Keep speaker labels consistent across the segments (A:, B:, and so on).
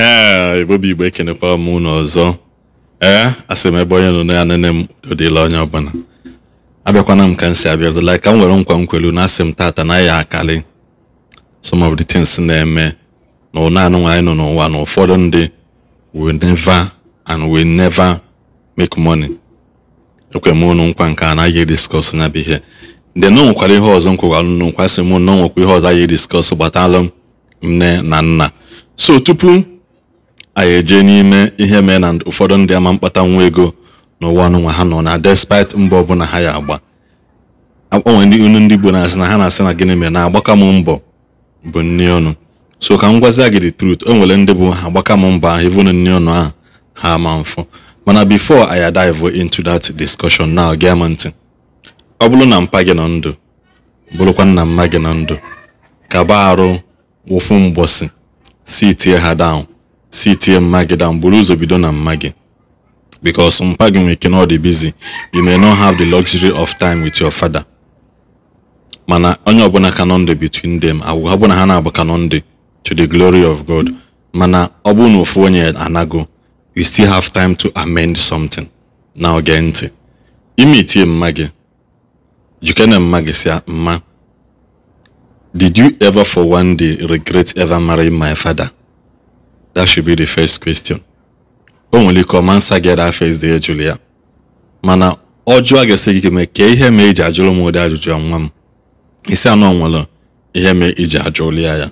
A: ehe Ibobi Igbo ekenekwa m ụnụ ọzọ ee eh, asị m ebe onye nọ ya nene m odịla onye ọbụla abịakwana m ka m si abịa ọzọla ka m nwere nkwa nkwelu na asị m tata na ya akali some of the things na-eme na ụna anụnwa anyị nọ n'ụwa na ụfọdụ ndị we never and we never make money ekwe m ụnụ nkwa nke a na-agaghị discuss nya bụ ihe ndị na ihe ọzọ nkwewalụ nụ nkwa sị m na ihe ọzọ agaghị discuss gbatalụ m nne na nna so tupu anyị eje n'ime ihe mee na ụfọdụ ndị ama mkpata nwa ego n'ụwa ọnụnwa ha nọ na despite mbọ ọbụla ha ya agba akpanwe ndị unu ndị Igbo na-asị na ha na-asị na gịnị mere na agbaka m mbọ bụ nni ọnụ so ka m gwazie gị the truth o nwere ndị bụ ha agbaka m mbọ ahụ even nni ọnụ ahụ ha ama mfụ mana before I dive into that discussion now gee m ntị ọ bụrụ na mpa gị nọ ndụ bụrụkwa nna mma gị nọ ndụ baa arụ wụfu mgbọsị si tie ha down si tie mma gị down buru na mma gị because mpa gị nwere ike na busy you may not have the luxury of time with mana onye ọbụla ka nọ between them ọ bụrụ na ha na-abụ ka nọ to the glory of God mana ọ bụrụ na ofu onye anago you still have time to amend something na oge ime itie mma gị si ah, mma did you ever for regret ever marrying my father That should be the first question. O nwere ike ọma nsa gị that first day jụrụ ya mana ọ jụọ ga-esi gị mee ka ihe ma eji ajụrụ m ụdị ajụjụ nwa m isi anọ nwere ihe ma iji ajụrụ ya ya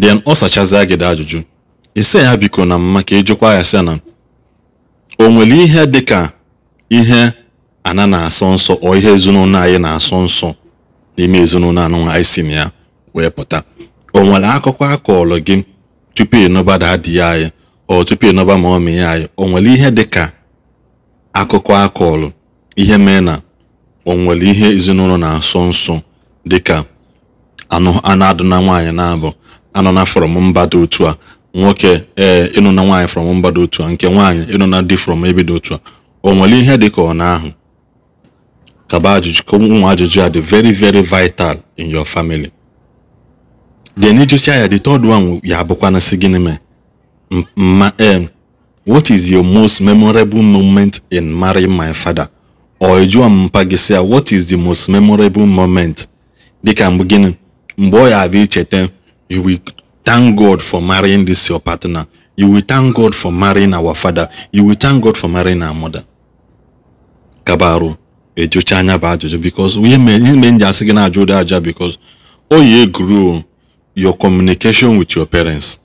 A: then ọ sachazia gị ajụjụ isi ya biko na mma ka ịjụkwa ya sị na o nwere ihe dị ka ihe ana na-asọ nsọ ọ ihe ezinụlọ anyị na-asọ nsọ n'ime ezinụlọ anụnwa anyị si na ya wee pụta o nwere akụkọ a gị tupu ịnọba daadị ya anyị ọ tupu ịnọba ma ọmị ya anyị o nwere ihe dị ka akụkọ akọlụ ihe mee na o nwere ihe ezinụlọ na-asọ nsọ dịka anụ adụ na nwaanyị na-abụ anọ na from mba dị otu a nwoke ee ịnụ na nwaanyị from mba dị otu a nke nwaanyị ịnụ na dị from ebe dị otu a o nwere ihe dị ka ọ na-ahụ kaba ajụjụ ka ụmụ ajụjụ a dị very very vital in your family then ịjụcha ya the third one ya bụkwana na gịnị mee ma eh, what is your most memorable moment in marrying my father or jụọ mpa gị sị what is the most memorable moment dịka mgbe gịnị mgbe ọ ya abịa icheta you will thank god for marrying this your partner you will thank god for marrying our father you will thank god for marrying our mother kabaru ejucha anya bụ ajụjụ because ihe mee ihe mee nji asị gị na-ajụ ụdị aja because o yi eguru your communication with your parents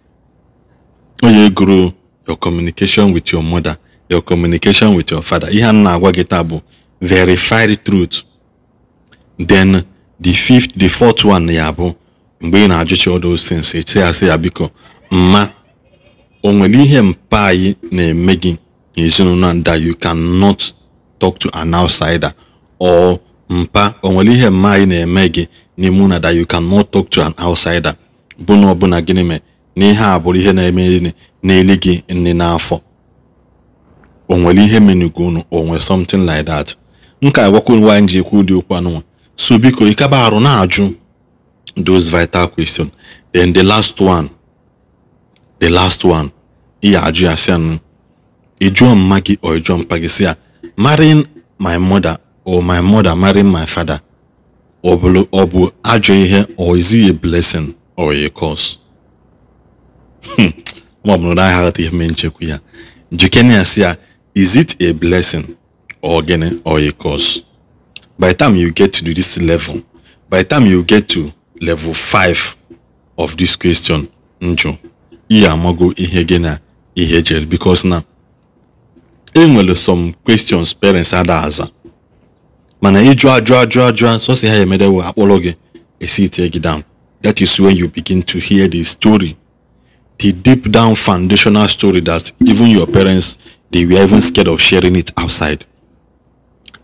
A: onye gụrụ your communication with your mother your communication with your father ihe a na-agwa gị taa bụ verified truth then the fifth the fourth one ya bụ mgbe ị na-ajụcha all those things eti asị ya biko mma o nwere ihe mpa anyị na-eme gị ezinụlọ that you not talk to an outsider or mpa o nwere ihe mma anyị na-eme gị n'ime na that you cannot talk to an outsider bụ na ọbụna gịnị mee na ihe a bụrụ ihe na-eme n'eli gị nne n'afọ o nwere ihe menugo unu o nwe something like that nka agwakwa nwaanyị ji ekwu ụdị okwu anụnwa so biko ịkaba arụ na-ajụ those vital question then the last one the last one ị ajụ ya anụ ịjụọ mma gị ọ ịjụọ mpa gị si ya marrying my mother or my mother marrying my father ọ bụ ọ bụ ajọ ihe or is it a blessing or a curse ma hmm. bụrụ na heart ihe mee nchekwa ya jikene ya si ya is it a blessing or gịnị or a curse by the time you get to this level by the time you get to level 5 of this question njụ ihe amago ihe gị na ihe jere e because na enwere some questions parents ada aza mana ịjụ ajụ ajụ ajụ sọsi ha emere wee akpọrọ gị esi tie gị down that is when you begin to hear the story the deep down foundational story that even your parents they were even scared of sharing it outside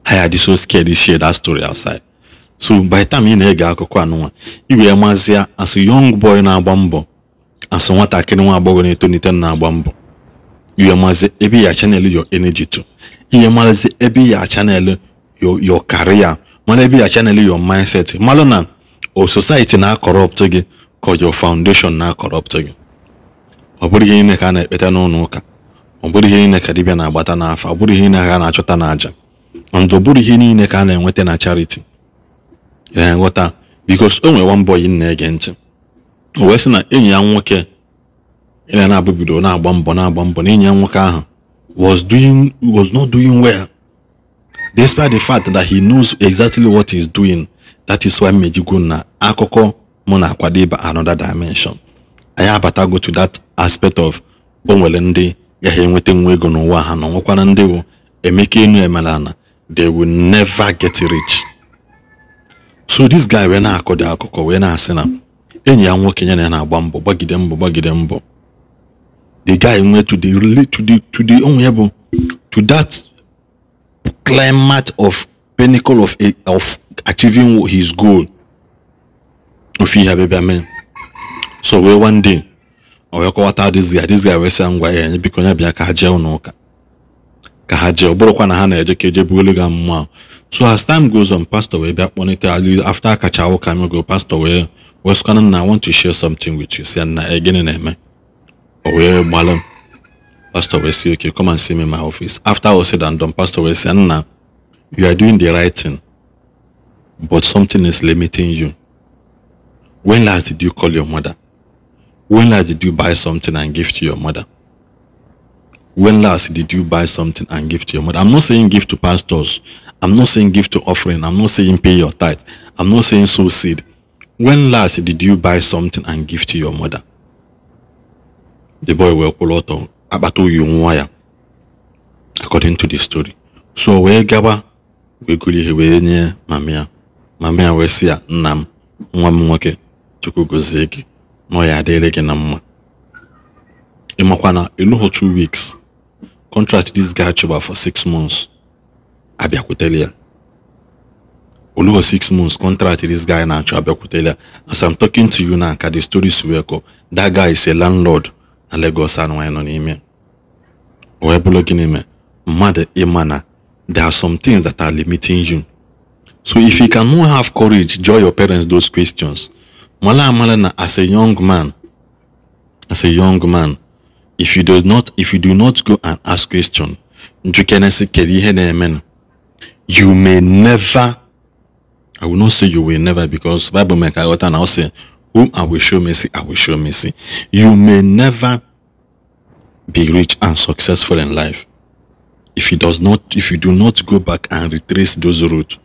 A: ha ya so scared to share that story outside so by the time ị na-ege akụkọ anụnwa ị wee as a young boy na-agba mbọ as nwatakịrị nwa agbọghọ na-etonite na-agba mbọ iwe mazi ebe ya chanel your energy to iwe mazi ebe ya chanel your your career mana ebe ya chanel your mindset malụ na o society na-akọrọpt gị ka your foundation na-akọrọpt gị ọ bụrụ ihe niile ka a na-ekpeta n'ụlọ ụka ọ bụrụ ihe niile ka dibịa na-agbata n'afọ ọ bụrụ ihe niile ka a na-achọta n'àjà ndụ bụrụ ihe niile ka a na-enweta na chariti ya nghọta bikos o nwere one boy na-ege ntị o wee sị na enyi ya nwoke na na-abụ bido na-agba mbọ na-agba mbọ na enyi ya nwoke ahụ was doing was not doing well despite the fact that he knows exactly what he's doing that is why mejigo na akụkọ mụ na-akwadebe another dimension anyị abatago to that aspect of onwere ndị ya ha enweta nwa ego n'ụwa ha na nwekwara ndị bụ emeka enu emelana they will never get rich so this guy wee na-akọ dị akụkọ wee na-asị na enyi ya nwoke ya na na-agba mbọ gbagide mbọ gbagide mbọ the guy nwee to the to the to the onwe ya bụ to that climate of pinnacle of, of achieving his goal ofe ihe abịabịa mee so wee one day ọ wee kọwata this guy this guy wee sị ngwa ya biko ya bịa ka ha jee ụlọ ụka ka ha jee ọ bụrụkwa na ha na-eje ka eje bugolu ga mmụọ ahụ so as time goes on pastor wee bịa kpọnite after akacha ụka go pastor wee wee sịkwana na i want to share something with you si na e, gịnị na-eme o wee gbalụ m Pastor Wesi, okay, come and see me in my office. After all said and done, Pastor Wesi, Anna, you are doing the right thing, but something is limiting you. When last did you call your mother? When last did you buy something and give to your mother? When last did you buy something and give to your mother? I'm not saying give to pastors. I'm not saying give to offering. I'm not saying pay your tithe. I'm not saying sow seed. When last did you buy something and give to your mother? The boy will pull out akpata oyi nwa ya according to the story so wee gaba wee gụrụ ihe wee nye mamia mamia wee sị ya nna m nwa m nwoke chukwu gozie gị na ya adịrị gị na mma ịmakwa na ịlụghọ two weeks contract this guy chọba for six months abịakwutere ya olugo six months contract this guy na-achọ abịakwutere ya as i'm talking to you now ka the stories wee kọ that guy is a landlord na Lagos anụnwanyị nọ n'ime wee bụrụ gịnị mee mmadụ ịma na there are some things that are limiting you so if you cannot have courage jụọ your parents those questions mala amala as a young man as a young man if you do not if you do not go and ask question njukenesi kedu ihe na-eme you may never i will not say you will never because bible mee ka ghọta na ọ sị whom i will show mercy i will show mercy you may never be rich and successful in life if you does not if you do not go back and retrace those routes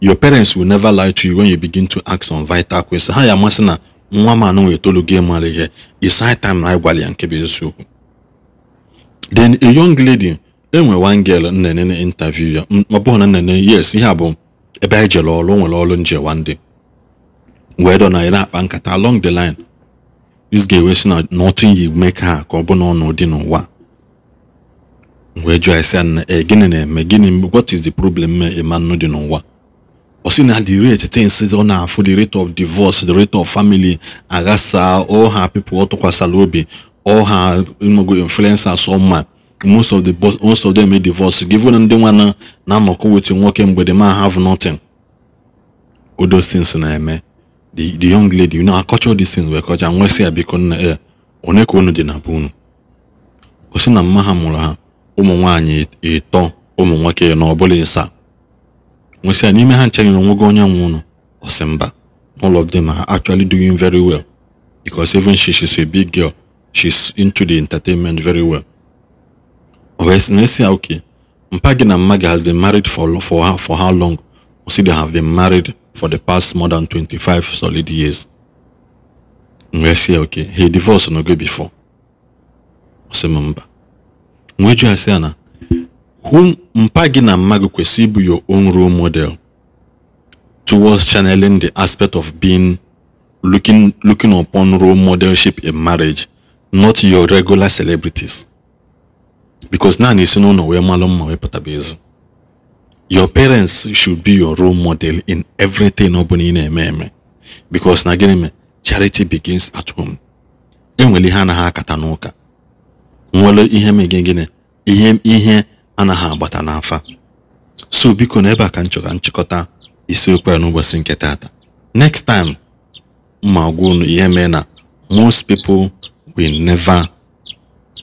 A: your parents will never lie to you when you begin to ask some vital questions ha ya amasị na nwa m anụ wee gị mara ihe is high time na ịgwala ya nke bụ eziokwu then a young lady enwe one girl nnene na interview ya ọ bụghị na nnene yes ihe a bụ ebe anyị jere ọrụ o nwere ọrụ nje one day wee dọ na ya akpa nkata along the line this ga ewe si na nothing you make ha ka ọ bụ n'ọnọdụ n'ụwa wee jụọ esi na ee gịnị na-eme gịnị what is the problem ịma nnu dị n'ụwa ọ sị na the rate things ọ na-afụ the rate of divorce the rate of family aghasa all her people ọ tụkwasara obi all her mogo influencers ma most of the most of them divorce given ndị nwa na anọkọ wetu nwoke mgbede ma have nothing all those things na-eme the the young lady na know these things wee kọcha nwa sị ya biko nna ya one unu na be unu o si na mma ha mụrụ ha ụmụ nwaanyị ịtọ e, ụmụ nwoke na ọbụla ịsa nwesị ya n'ime ha nchere na onwego onye nwe unu mba all of them are actually doing very well because even she she's a big girl she's into the entertainment very well o wee na esi ya okay mpa gi na mma has been married for, for, for how long See, they have been married for the past more than 25 solid years. Ngwesie okay, he divorced no go before. Ose mamba. Mweju say, ana, whom mpagi na mmagu kwesi bụ your own role model towards channeling the aspect of being looking looking upon role modelship in marriage, not your regular celebrities. Because na na isi no wee malụ mma wee pụtabezi. your parents should be your role model in everything ọ bụla na-eme eme because na gịnị me charity begins at home enwere ihe anaghị akata n'ụka nwere ihe megị gịnị ihe ihe anaghị agbata n'afa so biko na ebe a ka nchọga nchịkọta isiokwu ya n'ụbọchị nke taata next time ma gwa ihe mee na most people will never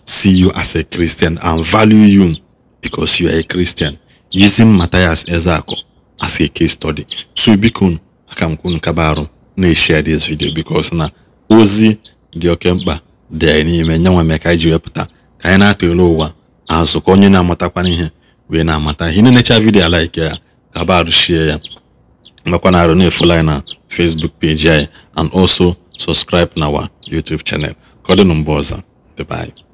A: see you as a Christian and value you because you are a Christian yizi Matthias Ezeaku as a case study so biko aka m kwunu kaba na-eshare this video because na ozi dị oke mkpa dị n'ime nye mee ka anyị ji wepụta ka anyị na-atụle ụwa azụ ka onye na-amatakwana ihe wee na-amata ihe na-enecha vidio alaike ya kaba share ya makwa na arụ na na Facebook page anyị and also subscribe na our YouTube channel ka ọ dịnụ mgbe ọzọ dịbe anyị